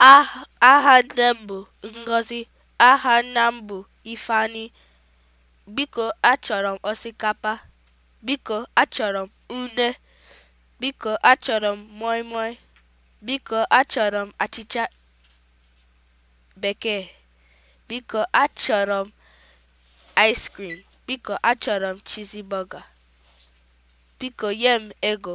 aha nne m bụ Ngozi, aha nna m bụ Ifeanyi. Biko achọrọ m osikapa, biko achọrọ m une, biko achọrọ m moi biko achọrọ m achịcha bekee, biko achọrọ m ice biko achọrọ m chizi burger, biko nye m ego